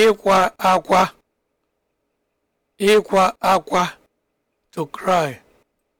ịkwa akwa ịkwa akwa to cry